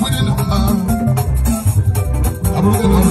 I'm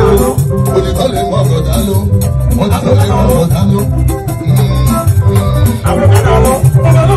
ló olùkọ́ lè mọ ọ̀gọ̀dá ló wọ́n ti lè mọ ọ̀gọ̀dá ló. Hmm, hmm. àwọn ọ̀gọ̀dá ló ọ̀gọ̀dá ló.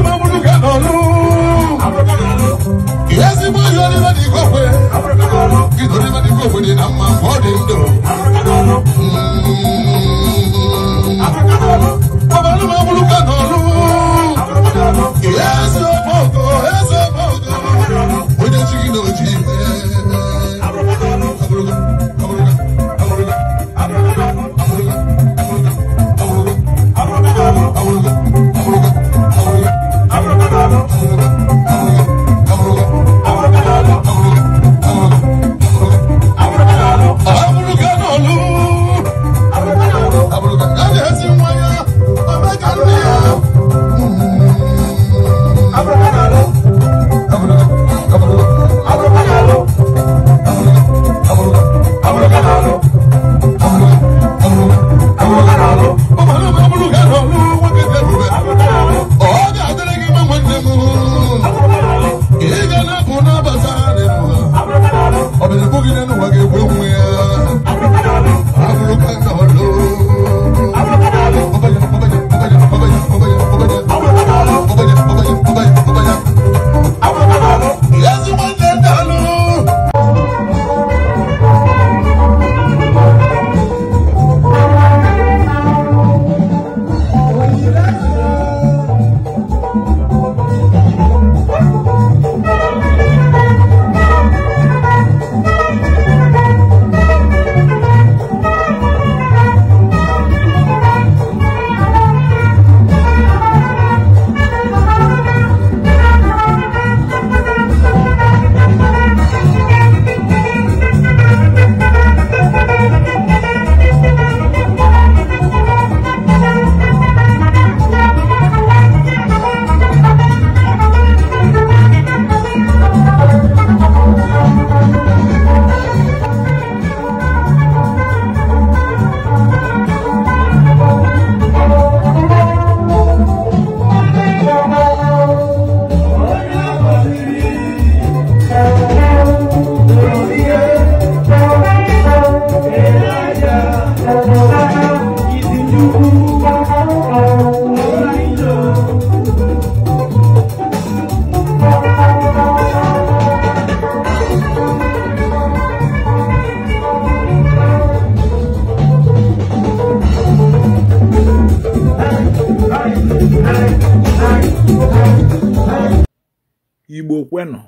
igbo kwenụ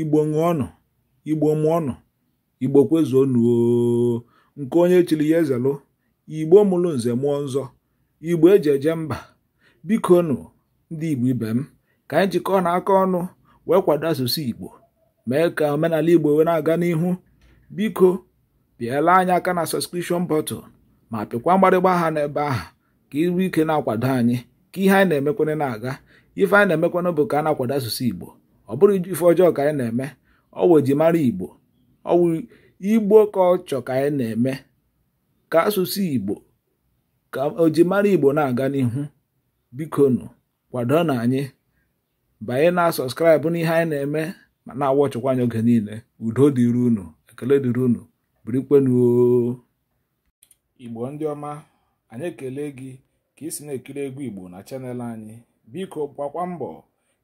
igbo ṅụọnụ igbo mụọnụ igbo kwezuonụ nke onye chiri ya ezelụ igbo mụrụ nze mụọ nzọ igbo eji eje mba bikonụ ndị igbo ibe m ka anyị jikọ na aka ọnụ wee kwado asụsụ igbo mee ka omenala igbo wee na-aga n'ihu biko pịala anyị aka na sọskrishọn bọtụl ma pịkwa mgbarịgba aha n'ebe ahụ ka iru ike na-akwado anyị ka ihe anyị na-emekwana na-aga ife anyị na-emekwana bụ ka a na-akwado asụsụ igbo ọ bụrụ ife ọjọọ ka anyị na-eme ọ wụ mara igbo ọ wụ igbo ka ọ chọ ka anyị na-eme ka asụsụ igbo ka ojimara igbo na-aga n'ihu bikonu kwado na anyị banye na sọskraịbụ n'ihe anyị na-eme ma na-awọ ọchịkwa anyị oge niile udo dịrị unu ekele dịrị unu birikwenuo igbo ndị ọma anyị ekele gị ka ị si na-ekiri egwu igbo na chanel anyị biko gbakwa mbọ